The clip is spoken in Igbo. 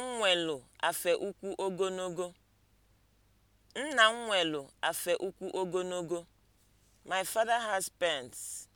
nwelu afe ukwu Nna m nwelu afe ụkwụ ogologo. My father has